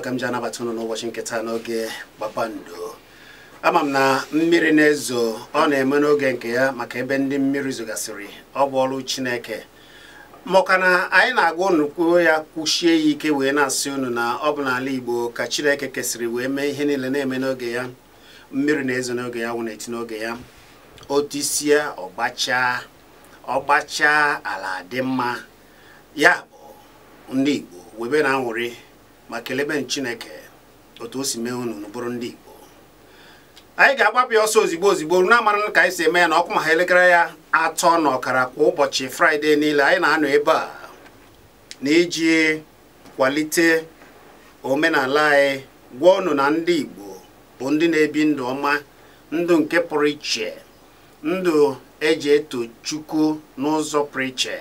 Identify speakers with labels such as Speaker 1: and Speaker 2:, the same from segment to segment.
Speaker 1: ugbu a ka m ji anabata ụnụ n'ụbọchị nketa n'oge kpakpando ama m na mmiri na-ezo ọ na-eme n'oge nke ya maka ebe ndị mmiri zogasịrị ọ bụ ọrụ chineke maka na anyị na-agwa unu ya kwuchie ya ike wee na-asị unu na ọ bụ n'ala igbo ka chineke kesịrị wee mee ihe niile na-eme n'oge ya mmiri na-ezo n'oge ya wụ na-eti n'oge ya otisie ọgbachaa ọgbacha ala dị mma ya bụ ndị igbo webe na anwụrị ma kelebe chineke otu o si mee unu n'ụbụrụ ndị igbo anyị ga-agbapụ ya ọsọ ozigbo ozigbo na-amara ka anyị si eme ya na ọkụ ma ha elekere ya atọ na ọkara kwa ụbọchị fraịde niile anyị na-anọ ebe a na-iji kwalite omenala anyị gwa ọnụ na ndị igbo bụ ndị na-ebi ndụ ọma ndụ nke pụrụ iche ndụ eji eto chukwu n'ụzọ pụrụ iche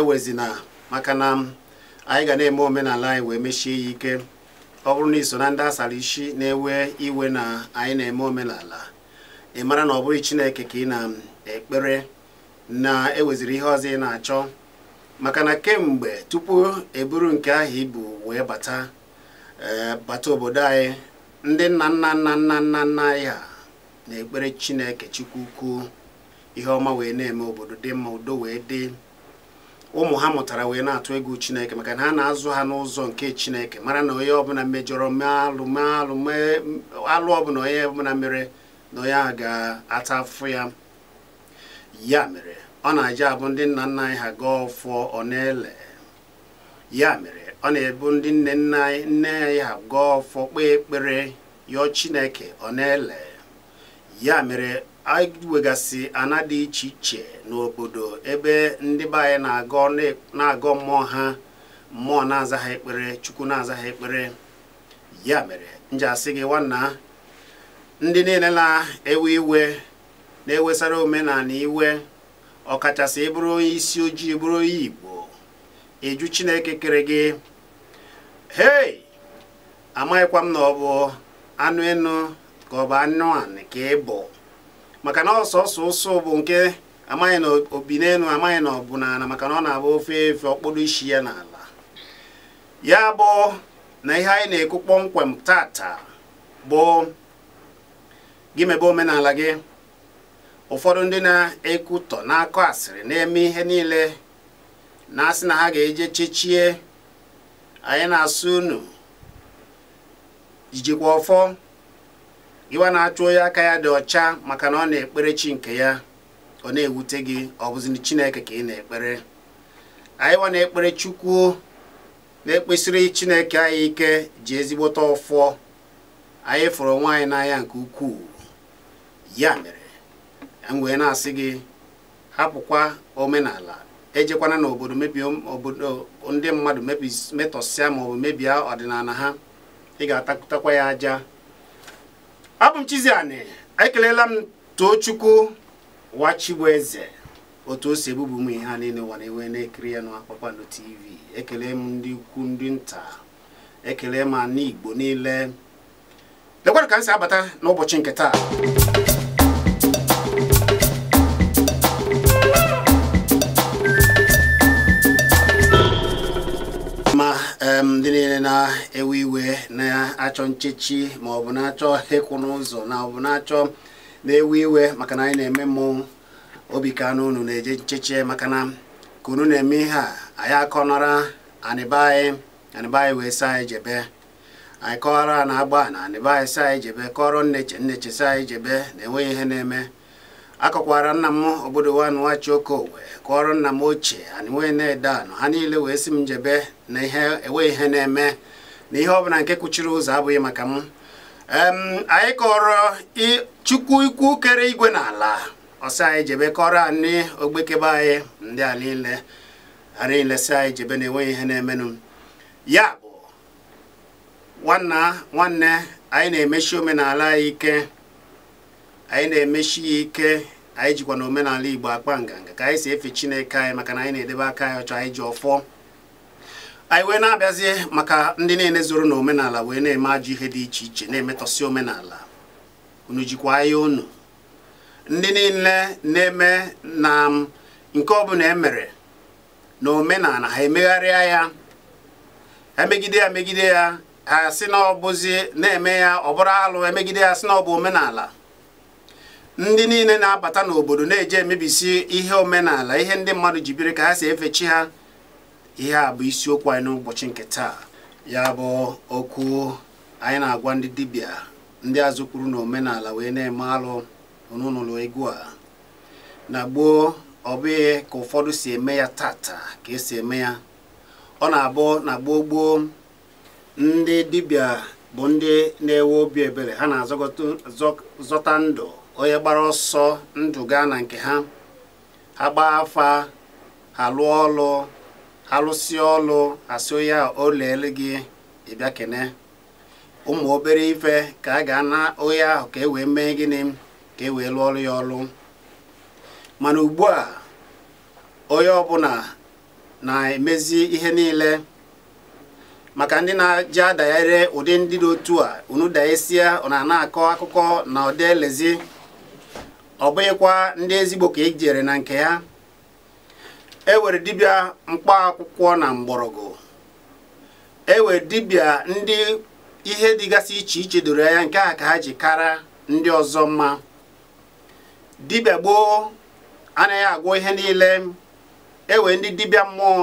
Speaker 1: ewezina maka na anyị ga na-eme omenala anyị wee mechie ya ike ọ bụrụ na iso na ndị asara isi na-ewe iwe na anyị na-eme omenala ị mara na ọ bụghị chineke ka ị na-ekpere na eweziri ihe ọzọ ị na-achọ maka na kemgbe tupu eburu nke ahụ ibu wee bata eh, bata obodo anyị ndị nna nna nna nna nna nna anyị ha na-ekpere chineke chukwu ihe ọma wee na-eme obodo dị mma udo wee dị ụmụ ha mụtara wee na-atụ ego chineke maka na ha na-azụ ha n'ụzọ nke chineke mara na onye ọbụla mejọrọ alụ ọbụla onye ọbụla mere na onye a ga-ata afụ ya ya mere ọ na-aja abụ ndị nna nna anyị ha gaa ọ na-ele ya mere ọ na-ebu ndị nne nna nne anyị ha gaa ọfọ kpee ekpere yọọ chineke ọ na-ele ya mere anyị ana dị iche iche n'obodo ebe ndị be na-agọ na mmụọ ha mmụọ na-aza ekpere chukwu na-aza ekpere ya mere nje asị gị nwanna ndị niile na-ewe iwe na-ewesara omenala iwe ọkachasị ịbụrụ onye isi ojii bụrụ onye igbo eju chineke kere gị hei amaghịkwa m na ọ bụ anụ enu ka ọ bụ anụ anị ka ị bụ maka na ọsọsọ ụsọ bụ nke amaghị na obi n'elu amaghị na ọ bụ n'ala maka na ọ na-abụ ofe efe ọkpụrụ isi ya n'ala ya bụ na ihe anyị na-ekwu kpọmkwem tata bụ gị mebe omenala gị ụfọdụ ndị na-ekwutọ na-akọ asịrị na-eme ihe niile na-asị na ha ga-eje chechie anyị na-asụ unu jijikwa ọfọ ịwa na-achụ onye aka ya dị ọcha maka na ọ na-ekpere chi nke ya ọ na-ewute gị ọ bụzi chineke ka ị na-ekpere anyị na-ekpere chukwu na-ekpesịrị chineke anyị ike ji ezigbote ọfọ anyị fụrụ nwaanyị anyị n'anya nke ukwuu ya mere m e wee na-asị gị hapụkwa omenala ejekwana n'obodo obodo ndị mmadụ metọsịa maọbụ mebie ọdịnala ha ị ga-atakụtakwa ya aja abụ m Chiziani ekelela m Tochukwu Wachigbueze otu o si ebubu ụmụ ihe a niile ụwa na-ewe na-ekiri ya na TV ekele m ndị ukwu ndị nta ekele m n'igbo Igbo niile lekwara ka m si abata n'ụbọchị nke taa ndị niile na-ewe iwe na-achọ nchechi ma ọ bụ na-achọ ịkwụ n'ụzọ na ọ bụ na-achọ na-ewe iwe maka na anyị na-eme mmọnwụ obi ka na unu na-eje nchechi maka na ka unu na-eme ihe a anyị akọnara anịba anyị wee saa anyị jebe anyị kọwara na agba na anịba anyị saa anyị jebe ijebe nneche nneche saa anyị jebe na-enweghị ihe na-eme akọkwara nna m obodo wanwachi okowe kọrọ nna m ochie anịnwe na-ede anụ ha niile wee si m njebe na ihe enwe ihe na-eme na ihe ọbụla nke kwuchiri ụzọ abụghị maka m anyị kọrọ chukwu ikwu kere igwe na ala ọsọ anyị jebe kọrọ anyị ogbekebe anyị ndị a niile a niile si anyị jebe na enweghị ihe na-emenụ ya bụ nwanna nwanne anyị na-emechi omenala anyị ike anyị na-emechi ya ike anyị jikwa na omenala igbo akpa nganga ka anyị si efe chineke anyị maka na anyị na-edebe aka anyị ọcha anyị ji ọfọ anyị wee na-abịazie maka ndị niile zoro na omenala wee na-eme ajọ ihe dị iche iche na-emetọsi omenala unu jikwa anya unu ndị niile na-eme na nke ọbụla emere na omenala ha emegharịa ya ha megide ya megide ya ha sị na ọ bụzi na-eme ya ọ bụrụ alụ emegide ya sị na ọ bụ omenala ndị niile na-abata n'obodo na-eje emebisi ihe omenala ihe ndị mmadụ ji biri ka ha si efe chi ha ihe a bụ isiokwu anyị n'ụbọchị nke taa ya bụ okwu anyị na-agwa ndị dibịa ndị azụ kwuru na omenala wee na-eme alụ onunụlọ egwu a na gboo ọ bụghị ka ụfọdụ si eme ya tata ka esi eme ya ọ na-abụ na gboo gboo ndị dibịa bụ ndị na-ewe obi ebere ha na-azọta ndụ onye gbara ọsọ ndụ gaa na nke ha ha gbaa afa ha lụọ ọlụ ha lụsịa ọlụ asị onye a o leele gị ịbịa kene ụmụ obere ife ka a ga na onye ahụ ka e wee mee gịnị ka e wee lụọ ya ọlụ mana ugbu a onye ọbụla na-emezi ihe niile maka ndị na-aja adagharị ụdị ndị dị otu a unu daesia ọ na akọ akụkọ na ọdị elezi ọ bụghịkwa ndị ezigbo ka e jere na nke ya e were dibịa mkpa akwụkwọ na mgbọrọgwụ e were dibịa ndị ihe dịgasị iche iche doro ya nke a ka ha ji kara ndị ọzọ mma dibịa gboo anaghị agwọ ihe niile ewe ndị dibịa mmụọ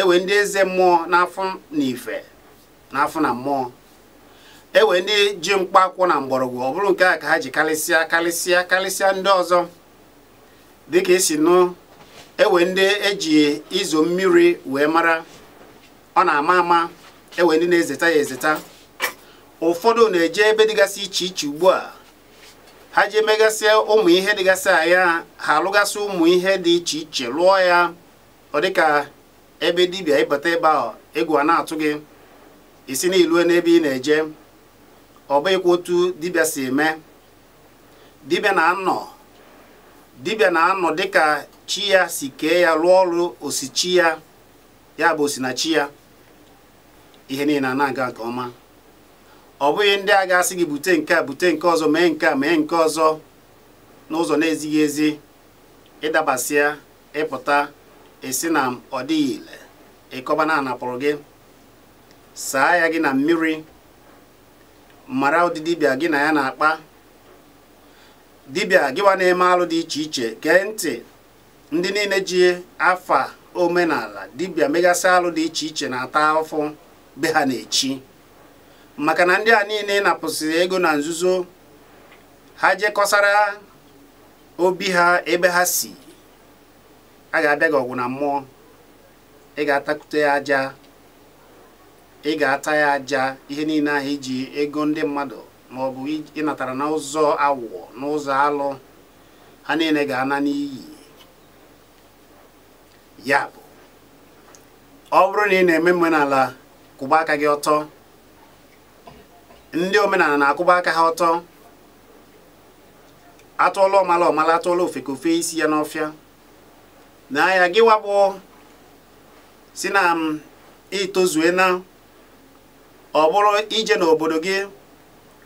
Speaker 1: ewe ndị eze mmụọ n'afọ na ife na mmụọ ewee ndị ji mkpa akwụ na mgbọrọgwụ ọ bụrụ nke a ka ha ji karịsịa karịsịa karịsịa ndị ọzọ dịka esi nụ ewe ndị eji izo mmiri wee mara ọ na-ama ama ewe ndị na-ezeta ya ezeta ụfọdụ na-eje ebe dịgasị iche iche ugbu a ha jee emegasịa ụmụ ihe dịgasị aya ha alụgasị ụmụ ihe dị iche iche lụọ ya ọ dịka ebe dibịa ịbata ebe ahụ egwu a na-atụ gị isi na n'ebe ị na-eje ọ bụghịkwa otu dibịa si eme dibịa na-anọ dibịa na-anọ dịka chi ya si kee ya rụọ ọrụ osichi ya ya bụ osinachi ya ihe niile na-aga nke ọma ọ bụghị ndị a ga-asị gị bute nke a bute nke ọzọ mee nke a mee nke ọzọ n'ụzọ na-ezighị ezi ịdabasịa ịpụta esi na ọ dịghị ile ịkọba na anapụrụ gị saa ya gị na mmiri mara ụdị dibịa gị na ya na-akpa dibịa gịwa na-eme alụ dị iche iche gee ntị ndị niile ji afa omenala dibịa megasi alụ dị iche iche na-ata afọ be ha na-echi maka na ndị a niile napụsịrị ego na nzuzo ha jekọsara obi ha ebe ha si a ga-abịa gị ọgwụ na mmụọ ị ga atakute ya aja ị ga-ata ya aja ihe niile ahụ iji ego ndị mmadụ ma ọ bụ ịnatara n'ụzọ awụọ n'ụzọ alụ ha niile ga-ana n'iyi ya bụ ọ bụrụ na ị na-eme omenala kwụba aka gị ọtọ ndị omenala na-akwụba aka ha ọtọ atụọla ọmala ọmala atụọla ofeke ofe isi ya n'ọfịa na ya gịwa bụ si na m itozue ọ bụrụ ije n'obodo gị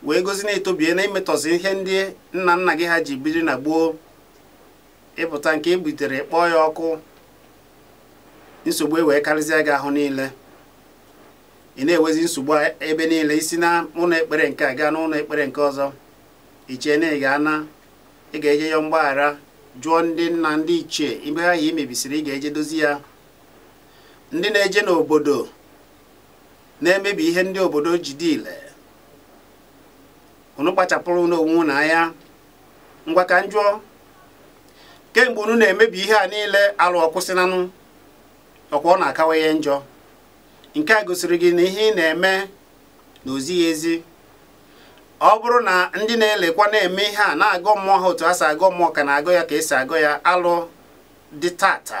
Speaker 1: wee gozi na-etobie na imetọzi ihe ndị nna nna gị ha ji biri na gboo ịpụta nke ebutere kpọọ ya ọkụ nsogbu e wee karịzịa gị ahụ niile ị na-ewezi nsogbu ebe niile isi na ụlọ ekpere nke a gaa n'ụlọ ekpere nke ọzọ ichee na ị ga-ana ị ga-eje ya mgbaghara jụọ ndị nna ndị ichie ibe ha i imebisiri ị ga-eje dozi ya ndị na-eje n'obodo na-emebi ihe ndị obodo ji dile unu kpachapụrụ n'onwe na anya ngwa ka kemgbe unu na-emebi ihe a niile alụ ọkwụsịnanụ ọkwa ọ na-akawanye njọ nke a gosiri gị na ihe ị na-eme na ozighị ezi ọ bụrụ na ndị na-elekwa na-eme ihe a na agụ mmụọ ha otu a si agụ mmụọ ka na-agọ ya ka esi agụ ya alụ dị tata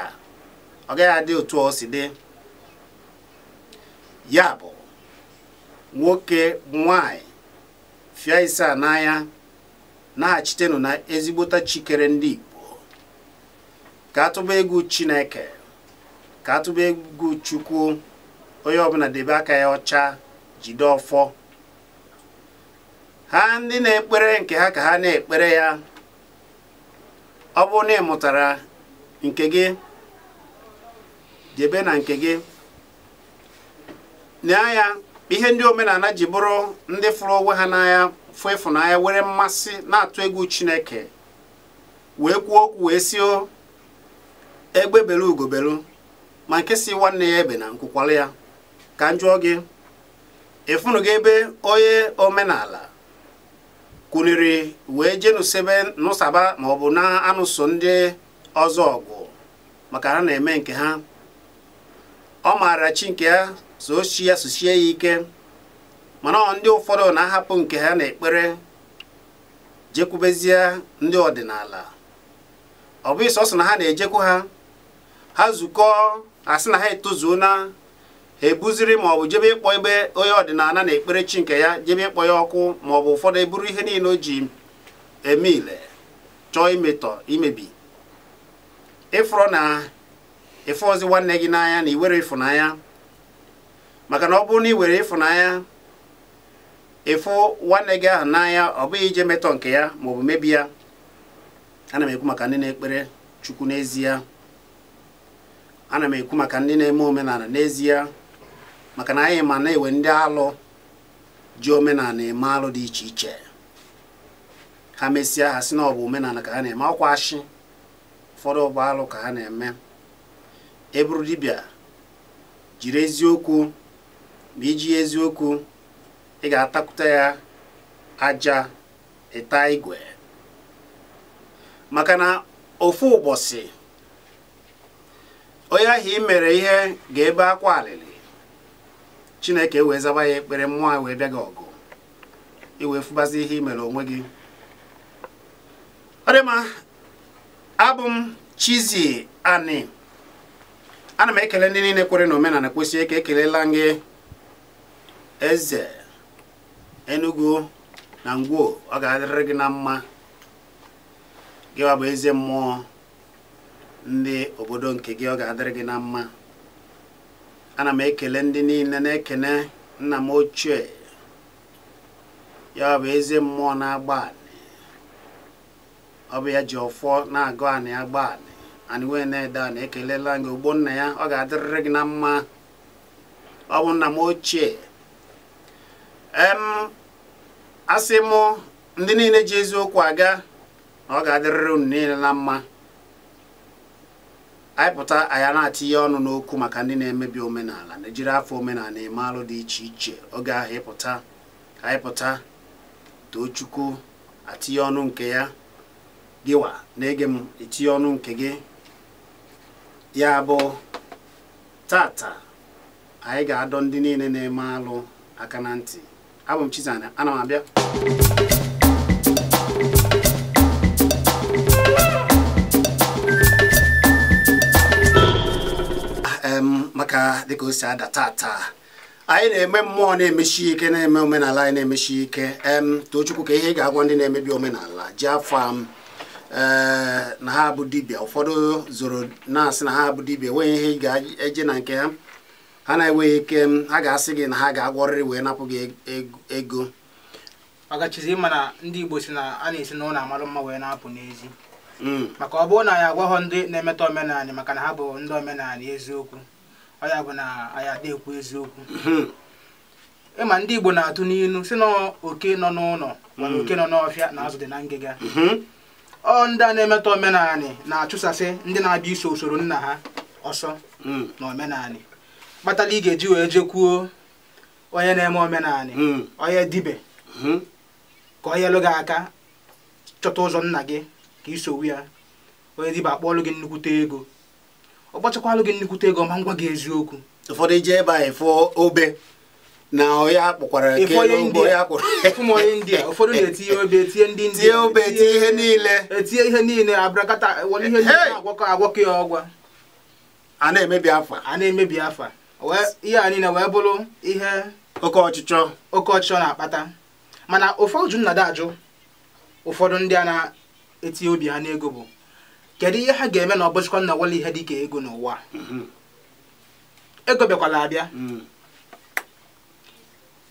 Speaker 1: ọ gaghị adị otu o si dị ya bụ nwoke nwanyị fịa ise a n'anya na na ezigbota chikere ndị Igbo ka atụba egwu Chineke ka atụba egwu Chukwu onye ọbụla debe aka ya ọcha jide ọfọ ha ndị na-ekpere nke ha ka ha na-ekpere ya ọ bụrụ na ị nke gị debe na nke gị n'anya ihe ndị omenala ji bụrụ ndị fụrụ onwe ha n'anya fụ ịfụnanya were mmasị na-atụ egwu chineke wee kwuo okwu wee si egbe belu ugobelu ma nke si nwanne ya ebe na nkwukwala ya ka m jụọ gị ịfụnụ gị ebe onye omenala kwuniri wee jee nụsebe nụsaba ma ọ bụ na-anụso ndị ọzọ ọgụ maka ha na-eme nke ha ọ maara chi nke ya so ya sosie ya ike mana ndị ụfọdụ na-ahapụ nke ha na-ekpere jekwubezie ndị ọdịnala ọ bụghị sọsọ na ha na-ejekwu ha ha zukọ asị na ha etozuona ha ebuziri ma ọ bụ jebe ịkpọ ebe onye ọdịnala na-ekpere chi nke ya jebe ịkpọ ya ọkụ ma ọ bụ ụfọdụ eburu ihe niile o ji eme ile chọọ imetọ imebi ịfụrọ na ịfụ ozi nwanne gị n'anya na iwere ịfụnanya maka na ọ bụrụ na ị were ịfụnanya ịfụ nwanne gị ahụ n'anya ọ bụghị ije metọ nke ya ma bụ mebi ya ana m ekwu maka ndị na-ekpere chukwu n'ezie ana m ekwu maka ndị na-eme omenala n'ezie maka na anyị ma na-ewe ndị alụ ji omenala eme alụ dị iche iche ha mesịa ha si na ọ bụ omenala ka ha na-eme ọkwa asị ụfọdụ ọbụ alụ ka ha na-eme eburu dibịa jiri eziokwu ma iji eziokwu ị ga-atakwute ya aja ịta igwe maka na ofu ụbọchị onye ahụ i mere ihe ga-ebe akwa alịlị chineke wee zaba ya ekpere mmụọ wee bịa gị ọgụ iwee fụbazi ihe i mere onwe gị ọ dị ma abụ m chizi Ani ana m ekele ndị niile kwere na omenala kwesịrị ka ekelela gị eze enugu na ngwo ọ ga-adịrị gị na mma ọ bụ eze mmụọ ndị obodo nke gị ọ ga-adịrị gị na mma ana m ekele ndị niile na-ekene nna m ochie ya bụ eze mmụọ na-agba anị ọ bụ ya ji ọfọ na-agụ anị agba anị anị wee na-ede anị ekelela gị nna ya ọ ga-adịrịrị gị na mma ọ bụ nna m ochie em asị mụ ndị niile ji eziokwu aga na ọ ga-adịrịrị unu niile na mma anyị pụta anyị na-atinye ọnụ n'okwu maka ndị na-emebi omenala na ejiri afọ omenala eme alụ dị iche iche oge ahụ ịpụta anyị pụta too chukwu atinye ọnụ nke ya gịwa na-ege m etinye ọnụ nke gị ya bụ tata anyị ga-adọ ndị niile na-eme alụ aka na ntị abụ m Chizana ana m abịa ah, maka dịka o si ada tata anyị na-eme mmụọ na-emechi ike na-eme omenala anyị na-emechi ike em tochukwu ka ihe ị ga-agwa ndị na-emebi omenala ji afọ m eh, na ha bụ dibia ụfọdụ zoro na-asị na ha bụ dibia enweghị ihe ị ga-eje na nke ha ha na-enweghị ike ha ga-asị gị na ha ga-agwọrịrị wee napụ gị e-, e-, ego
Speaker 2: ọgachizi ma na ndị Igbo si na a na-esi na ụlọ amalụ mma wee na-apụ n'ezi mm. maka ọ bụrụ na anyị agwaghọ ndị na-emetọ omenala maka na ha bụ ndị omenala eziokwu ọ ya bụ na anyị adekwu eziokwu mm-hmm. ịma ndị Igbo na-atụ n'ilu si na oke nọ n'ụlọ mana mm. oke nọ n'ọfịa na azụ dị na ngịga mm-hmm. ọ ndị a na-emetọ omenala na-achụsasị ndị na-abịa iso usoro nna ha ọsọ mm. na omenala kpatara ị ga-eji wee jekwuo onye na-eme omenala hmm. onye dibe hmm. ka onye lụ gị aka chọta ụzọ nna gị ka isowu ya onye dibe akpọọlụ gị nnukwute ego ọ kpọchakwalụ
Speaker 1: gị nnukwute ego ma ngwa gị eziokwu ụfọdụ ije ebe anyị fụọ obe na ọya kpọkwara onye india ụfọdụ na-etinye obe etinye ndị india obe etinye ihe
Speaker 2: niile etinye ihe niile abrakata were ihe niile agwakọ agwakọ ya ọgwa a na-emebi afa a na-emebi afa ihe a niile wee bụrụ ihe oke ọchịchọ oke ọchịchọ na-akpata mana ụfọdụ nna ajụ ụfọdụ ndị a na-etinye obi ha n'ego bụ kedu ihe ha ga-eme na ọbọchịkwa nna ihe dịka ego n'ụwa mm-hmm. ego bịakwala abịa mm.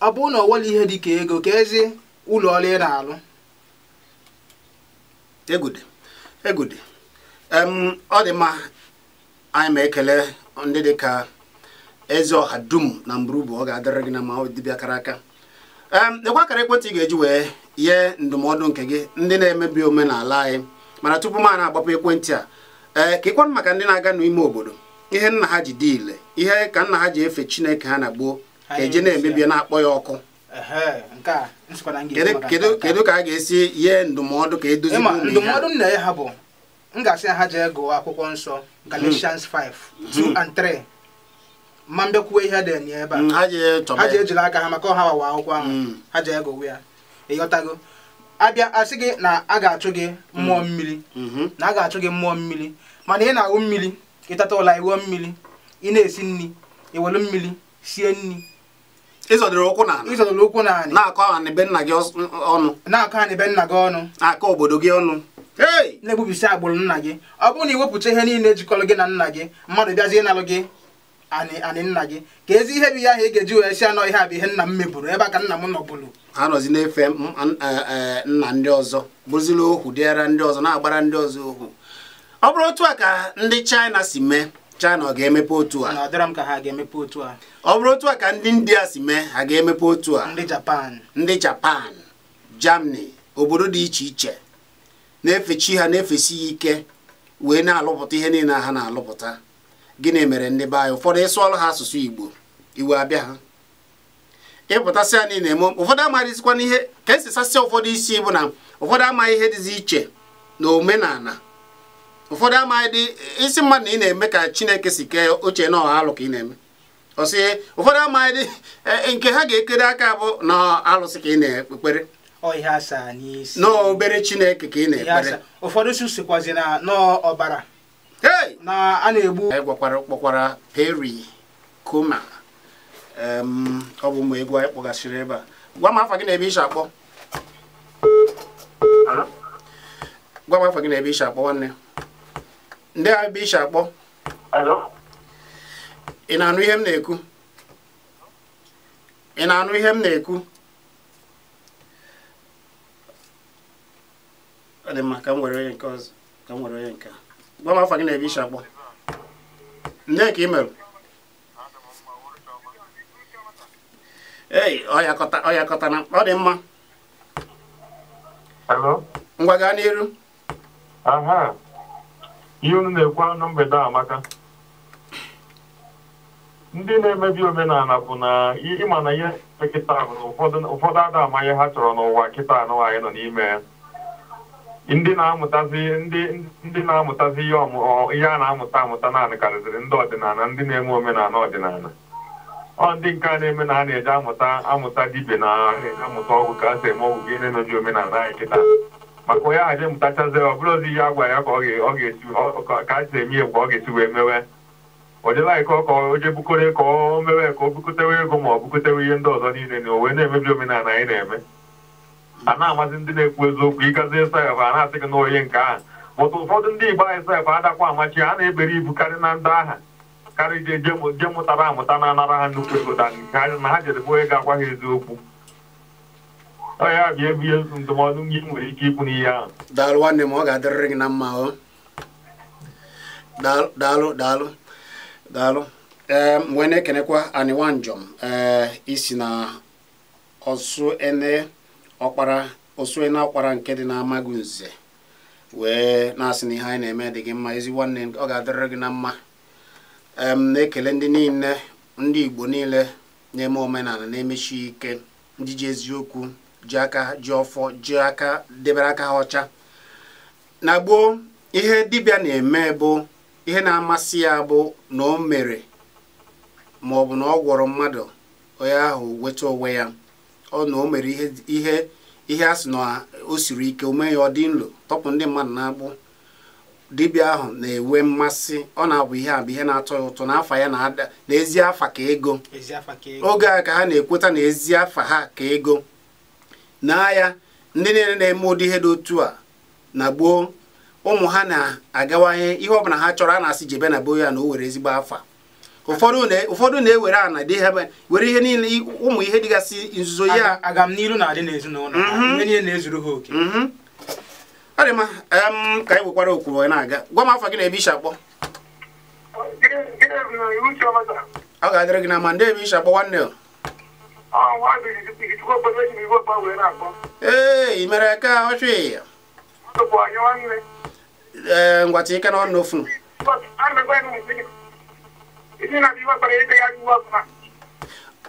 Speaker 2: ọ bụrụ na ọwele ihe dịka ego ka ezi ụlọ ọrụ ị na-alụ
Speaker 1: ọ dị mma anyị ma ekele ndị dịka eze ọha dum na mburubu ọ ga-adịrị gị na ma dibịa kara aka lekwa akara ekwentị ị ga-eji wee nye ndụmọdụ nke gị ndị na-emebi omenala anyị mana tupu m a na-agbapụ ekwentị a ee ka ịkwanụ maka ndị na-aga n'ime obodo ihe nna ha ji diile ihe ka nna ha ji efe chineke ha na gboo ka eji na-emebi na-akpọ ya ọkụ kedu ka a ga-esi nye ndụmọdụ ka edozi ndụmọdụ
Speaker 2: nna ya ha bụ m ga-asị ha jee gụọ akwụkwọ nsọ Galatians 5 2 and 3 ma mbịakwuwe ihe dị enye ebe a mm, ha ji ejiri aka ha maka ọha wawa akwụkwọ ahụ mm. ha ji egowe ya ịghọtago abịa asị gị na a ga-achụ gị mmụọ mm. mmiri mm-hmm. na a ga-achụ gị mmụọ mmiri mana ị na-awụ mmiri ịtata ụla iwuo mmiri ị na-esi nri iwelu mmiri sie nri ịzọdịrị ụkwụ ụkwụ na-akọ ha n'ebe nna gị ọnụ na-akọ nna gị ọnụ akọ obodo gị ọnụ na-egbubisi agbụrụ nna gị ọ bụrụ na iwepụta ihe niile jikọrọ gị na nna gị mmadụ bịazie ịnalụ gị anị anị nna gị ka ezi ihe bụ ihe ahụ ị ga-eji wee si anọ ihe a bụ ihe nna m meburu ebe a ka nna m nọbụrụ
Speaker 1: nọzi na-efe eh, eh, nna ndị ọzọ bụziri ohu dịara ndị ọzọ na-agbara ndị ọzọ ohu ọ bụrụ otu a ka ndị China si mee China ọ ga-emepe otu a ọ bụrụ otu a ka ndị India si mee ha ga-emepe otu a ndị Japan ndị Japan Germany obodo dị iche iche na-efe chi ha na-efesi ya ike wee na-alụpụta ihe niile ha na-alụpụta gịnị mere ndị be anyị ụfọdụ ịsụọlụ ha asụsụ igbo iwe abịa ha ịpụtasịa niile eme ụfọdụ amaghịzikwana ihe ka esi sasịa ụfọdụ isi bụ na ụfọdụ amaghị ihe dịzi iche na omenala ụfọdụ amaghị isi mmadụ na ị na-eme ka chineke si kee oche na ọha alụ ka ị na-eme ọsị ụfọdụ amaghị dị e, e, nke ha ga-ekere aka bụ na alụsị ka ị na-ekpere n'obere chineke ka ị na-ekpere ụfọdụ sikwazi na ọbara na a na-egbu gwakwara kpọkwara peri kuma ọ bụ mgbe egwu anyị kpọgasịrị ebe a gwa m afa gị na ebe isi akpọ gwa m afa gị na ebe isi akpọ ndị a ebe isi akpọ ị na-anụ ihe m na-ekwu ị na-anụ ihe m na-ekwu onye gwa m afọ gị na-ebe ishi akpọ nne ka ị mere ei ọyakọta na ọ dị mma ngwa gaa n'iru
Speaker 3: ihe unu na-ekwu anụ mgbede amaka ndị na-emebi omenala bụ na ịma na ihe kịta bụ na ụfọdụ ada amaghị ha chọrọ n'ụwa kịta anụ anyị nọ n'ime ya ndị na-amụtazi ndị na-amụtazi ihe ihe a na-amụta amụta naanị karịzịrị ndị ọdịnala ndị na-eme omenala ọdịnala ọ ndị nke a na-eme na a na-eji amụta amụta dibe na amụta ọgwụ ka a si eme ọgwụ gị na-emeji omenala anyị kịta maka onye aha je mụtachazi ọ bụrụ ozi ihe a gwara ya ka ọ ga ka a si eme egwu ọ ga-esi wee mewe ọ dịla anyị ka ọ ka o bukore ka o mewe ka o bukotewe ego ma ọ bukotewe ihe ndị ọzọ niile na o wee na-emebi omenala anyị na-eme a na amasị ndị na-ekwu eziokwu ịgazi sef a na-asị gị n'oyi nke ahụ bụtụ ụfọdụ ndị igbo anyị sef adakwa amachi a na-ebere ibu karị na ndị agha karị je mụtara amụta na anara ha nnukwu ego na ha jere onye ga-agwa ha eziokwu ya ebu ihe ndụmọdụ gị nwere ike ikwu n'ihe ahụ daalụ
Speaker 1: nwanne m ọ ga-adịrịrị gị na mma ọ daalụ daalụ daalụ ee wee na-ekenekwa aniwanjọm ee eh, isi na ọsụ ene ọkpara osue na ọkpara nke dị n'amaghị nze wee na-asị na ihe anyị na-eme dị gị mma ezi nwanne ọ ga-adịrịrị gị na mma na-ekele ndị niile ndị igbo niile na-eme omenala na-emechi ike ndị ji eziokwu ji aka ji ọfọ ji aka debere aka ha ọcha na gboo ihe dibịa na-eme bụ ihe na-amasị ya bụ na o mere ma ọ bụ na ọ gwọrọ mmadụ onye ahụ weta onwe ya ọ na o mere ihe ihe a sị na o siri ike o mee ya ọ dị nlo tọpụ ndị mmadụ na-agbụ dibịa ahụ na-enwe mmasị ọ na-abụ ihe a bụ ihe na-atọ ya ụtọ n'afa ya na-ada n'ezi afa ka ego oge a ka ha na-ekweta na ezi afa ha ka ego na ya ndị niile na-eme ụdị ihe dị otu a na gboo ụmụ ha na-agawanye ihe ọbụla ha chọrọ a na-asị jebe na gboo ya na o were ezigbo afa ụfọdụ na-ewere ana dị ha were ihe niile ụmụ ihe dịgasị nzuzo ya
Speaker 3: aga m
Speaker 2: agamnihu na-adị n'ezinụlọ mhm. ihe
Speaker 1: niile na-ezuru ha oke mhm. ọrị ma ka anyị nwekwara okwuru na-aga gwa m afọ gị na ebe isha akpọ ọ ga-adịrị gị na ma ndị ebe isha akpọ nwanne ee mere ka ọchị ee ngwata ike na ọnụ ofu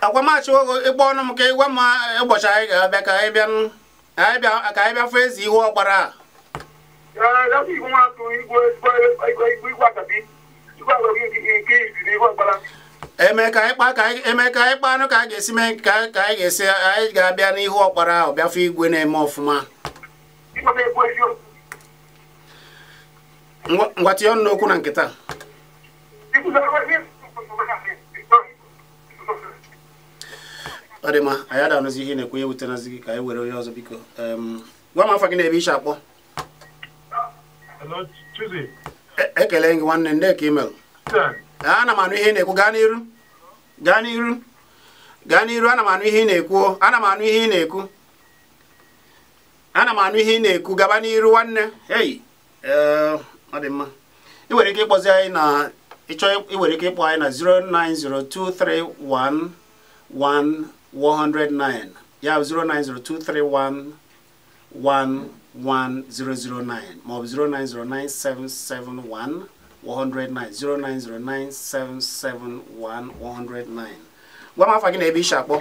Speaker 1: akwamachi
Speaker 3: ogo ịgba ọnụ m ka ịgwa m
Speaker 1: e, ụbọchị anyị ga-abịa ka anyị bịa fụ ezi ihu ọgbara e eme ka anyị kpaa ka anyị e kpaa anụ ka anyị ga-esi mee ka anyị ga-esi anyị ga-abịa n'ihu ọkpara ahụ bịafụ igwe na-eme ọfụma ngwa ọnụ n'okwu na nkịta ọ dị mma anyị adanụzi ihe na-ekwenye wetanazi gị ka anyị were onye ọzọ biko gwa m afọ gị na-ebe iche akpọ e, ekele gị nwanne nde ka imelụ ana m anụ ihe na-ekwu gaa n'iru gaa n'iru gaa n'iru ana m anụ ihe ị na-ekwu ana m anụ ihe ị na-ekwu ana m anụ ihe ị na-ekwu gaba n'iru nwanne hey eh, ọ dị mma ị nwere ike ịkpọzi anyị na ịchọọ iwere ike ịkpọ anyị na 090231109 ya 09023111009 maọbụ 0909771 109 gwa m afa gị na ebe ishi akpọ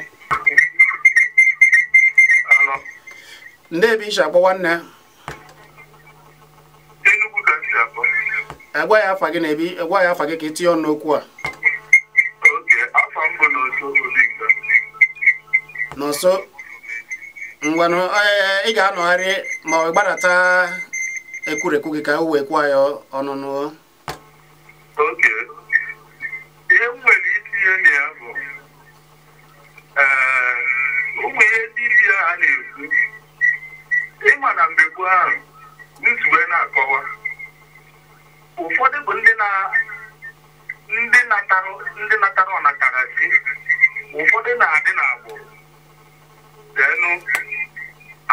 Speaker 1: ndị ebe ishi akpọ nwanne
Speaker 3: Enugu ga isi akpọ
Speaker 1: egwa ya afa gị na ebi ya afa gị ka ị tinye ọnụ n'okwu a n'ọsọ ngwanụ e, ị ga-anọgharị ma ọ gbadata ekwurekwu gị ka o wee kwuo ya ọnụnụ
Speaker 3: ihe m nwere ihe e, na-ekwu ịma na mgbe gboo ahụ nsogbu na-akọwa ụfọdụ bụ ndị ndị natara ọnatara si ụfọdụ na-adị n'agbụrụ denu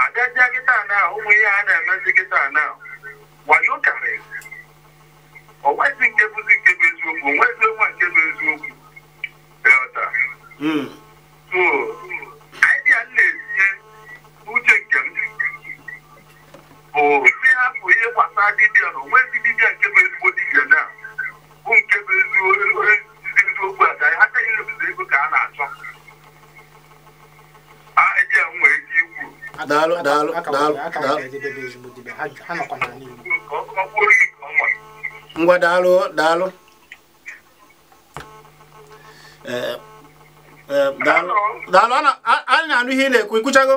Speaker 3: agajia kịta na ụmụ ihe a na-emezi kịta na wayo karịrị onwezi nke bụzi nke bụ eziokwu onwezi onwe nke bụ eziokwu delta hmm. so idea m na-etinye uche nke m bụ ndị hapụ ihe gbasara dibịa na nke bụ ezigbo dibịa na bụ nke bụ eziokwu e, a ha teghị ebido ego ka a na-achọ eji m nwere ikwu
Speaker 1: ngwa daalụ daalụ eh, eh, daalụ a na-anụ ihe ị na-ekwu ikwuchago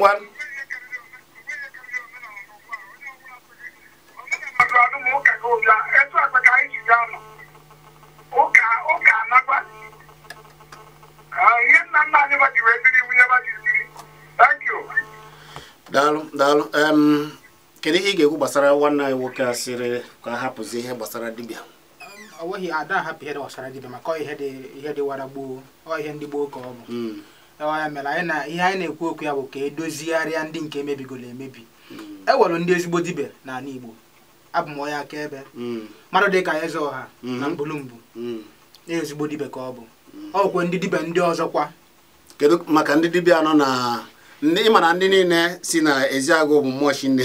Speaker 1: ngwa daalụ daalụ kedu ị ga-ekwu gbasara nwanne anyị nwoke a sịrị ka hapụzi ihe gbasara dibịa
Speaker 2: ọ nweghị ada ahapụ ihe gbasara dibịa maka ihe dị wara gboo ọ ihe ndị gboo ka ọ bụ hmm. ya mere anyị na ihe anyị na-ekwu okwu ya bụ ka edozigharịa ndị nke emebigoro emebi mm. ewelụ ndị ezigbo dibe n'ala Igbo abụ m onye akaebe mmadụ dị ka eze ọha mm-hmm. na mkpụrụmbụ
Speaker 1: mm. ezigbo dibe ka ọ bụ mm. ọkwe ndị dibịa ndị ọzọ kwa kedu maka ndị dibịa anọ na ndị ịma na ndị niile si na eziagụ bụ mmụọ chinne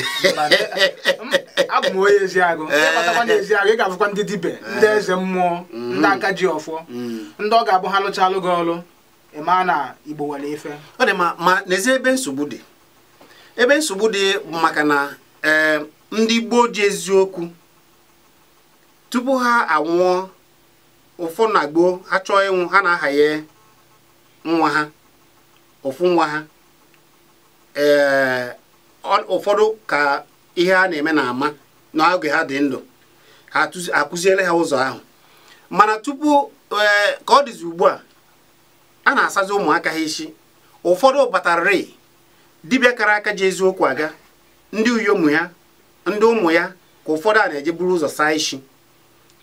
Speaker 1: abụ m onye eziagụ ịkpatakwa na eziagụ ị ga-afụkwa ndị dibịa ndị eh. eze mmụọ ndị aka
Speaker 2: ji ọfọ ndị ọ ga-abụ ha lụchalụ gị ọlụ ịma na igbo nwere
Speaker 1: ife ọ dị ma ma n'ezie ebe nsogbu dị ebe nsogbu dị maka na eh, ndị gboo ji eziokwu tupu ha anwụọ ụfụ na gboo ha chọọ ịnwụ ha na-ahaye nwa ha ụfụ nwa ha eh, ụfọdụ ka ihe a na-eme na ama n'oge ha dị ndụ ha akụziere ha ụzọ ahụ mana tupu eh, ka ọ dịzi ugbu a a na-asazi ụmụaka ha isi ụfọdụ batararị dibịa kara aka ji eziokwu aga ndị uyo ụmụ ya ndị ụmụ ya ka ụfọdụ a na-eje buru ụzọ saa isi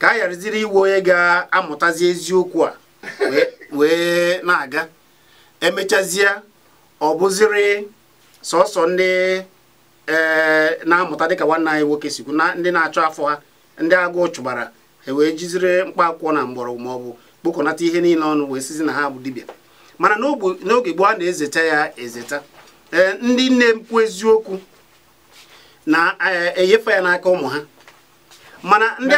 Speaker 1: ka a yariziri iwe onye ga-amụtazi eziokwu a wee na-aga emechazie ọ bụziri sọsọ ndị e, na-amụta dịka nwanne anyị nwoke sikwu ndị na-achọ afọ ha ndị agụụ chụbara e wee jiziri mkpa akwụkwọ na mgbọrọgwụ maọbụ kpokọnata ihe niile ọnụ wee sizi na ha bụ dibịa mana n'oge gboo a na-ezeta ya ezeta ee ndị nne mpụ eziokwu na-enyefe ya n'aka ụmụ ha mana ndị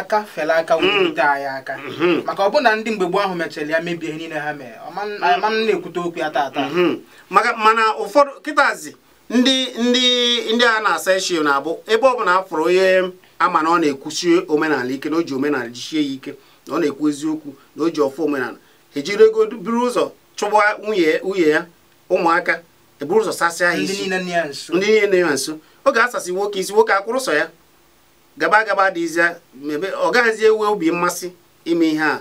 Speaker 1: aka fela
Speaker 2: aka hmm. wute anyị aka hmm. maka ọbụna ndị mgbe gboo ahụ mechara ya mebie ihe niile ha mere ma m
Speaker 1: na-ekwute okwu ya taata hmm. mana ụfọdụ kịtazi ndị ndị ndị a na-asa eshi na-abụ ebe ọ bụla afọrọ onye ama na ọ na-ekwusi omenala ike na o ji omenala jichie ya ike na ọ na-ekwu eziokwu na o ji ọfọ omenala ejiri ego buru ụzọ chụgba nwunye ya ụmụaka eburu ụzọ sasị ha isi ndị
Speaker 2: niile nọ ya nso
Speaker 1: oge asasị nwoke isi nwoke akwụrụ sọ ya gaba gaba dịzie mebe ọ gaghịzi enwe obi mmasị ime ihe a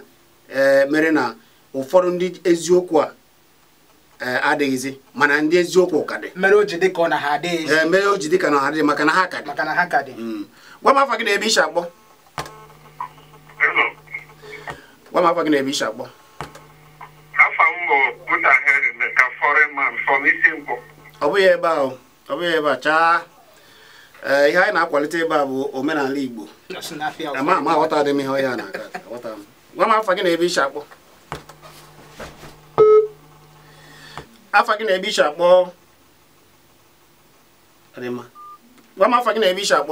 Speaker 1: e, mere na ụfọdụ ndị eziokwu a e, adịghịzi mana ndị eziokwu ka dị mere o ji dị e, na ha adịghị maka na ha ka dị mm. gwa m afọ gị na ebe iche akpọ gwa m afa gị na ebi isi akpọ
Speaker 3: afa m bụ Buta Henry Meka Foreman from Isinkwu
Speaker 1: ọ bụghị ebe a ọ bụghị ebe a chaa eh, ihe anyị na-akwalite ebe a bụ omenala Igbo ama ama aghọta dị m ihe ọhịa na gwa m afa gị na ebi isi akpọ Afọ gị na ebi isi akpọ gwa m afa gị na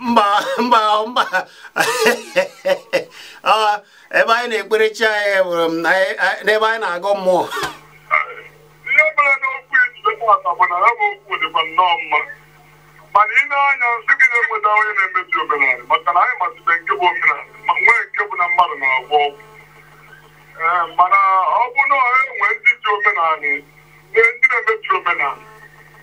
Speaker 1: mba mba mba ebe anyị na-ekpere chi anyị e were m n'ebe anyị na agụ mmụọ
Speaker 3: ihe mere bụ na ya bụ okwu dịkwa nnọọ mma mana na-anya nsị na-enweta onye na-emebi omenala maka na nke bụ omenala ma nwee nke bụ na mmadụ na-agwọ mana ọ bụ na enwe ndị ji omenala e ndị na-emebi omenala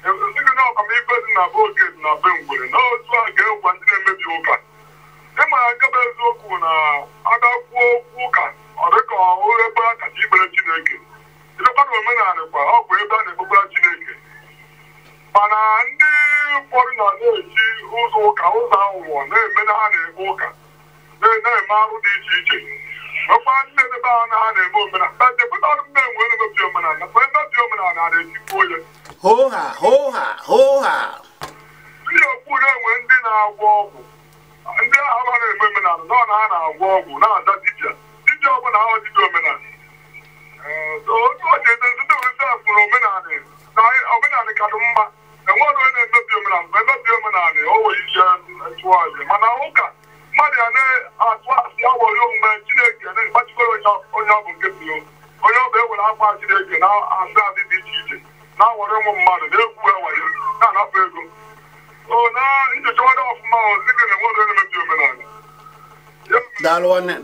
Speaker 3: esighị na ọkpamikpe dị na be oke dị na be ngwere na otu a ga ndị na-emebi ụka ịma agaba eziokwu na agakwuo okwu ụka ọ dịka ebe a kacha ikpere Chineke ilekwana omenala kwa ọ bụ ebe a na-ekpekwara Chineke mana ndị ụfọdụ na na-eji ụzọ ụka ụzọ aghụghọ na-eme na ha na-ekpe ụka na-eme arụ dị iche iche ọkwa ndị ebe a na omenala emebi omenala mgbe emebi omenala na-etikwu onye hoha hoha hoha ndị enwe ndị na-agwọ ọgwụ ndị ahụ omenala na agwọ ọgwụ na na omenala otu ọ na omenala omenala mgbe omenala mana ụka mmadụ a na-atụ asị awọrị omume chineke na-agbachikwere onye ọ bụ nke pụrụ onye ọ bụ ewere akwa chineke na ndị adị dị iche iche na-awọrị ụmụ mmadụ na-ekwu ewayo na-anapụ ego o na ọfụma dịka na enwere omenala daalụ mere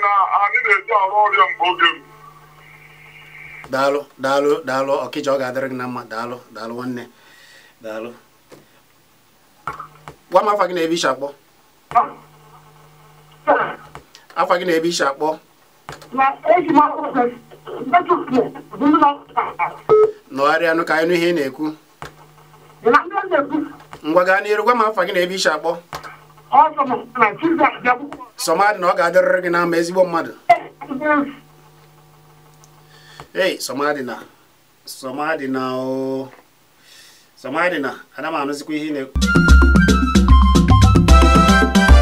Speaker 3: na anyị na-eji arụ ọrịa mgbe oge
Speaker 1: daalụ daalụ daalụ ọ ga-adịrị gị na mma daalụ daalụ nwanne daalụ kpọọ m afa gị na-ebe isi akpọ afa gị na-ebe isi akpọ nọgharịa ka anyị nụ ihe ị na-ekwu ngwa gaa n'iru gwa m afa gị na-ebe isi akpọ sọmadị na ọ ga-adịrịrị gị n'ama ezigbo mmadụ ei sọmadị na sọmadị na o oh, sọmadị na anụzikwa ihe ị na-ekwu Thank you.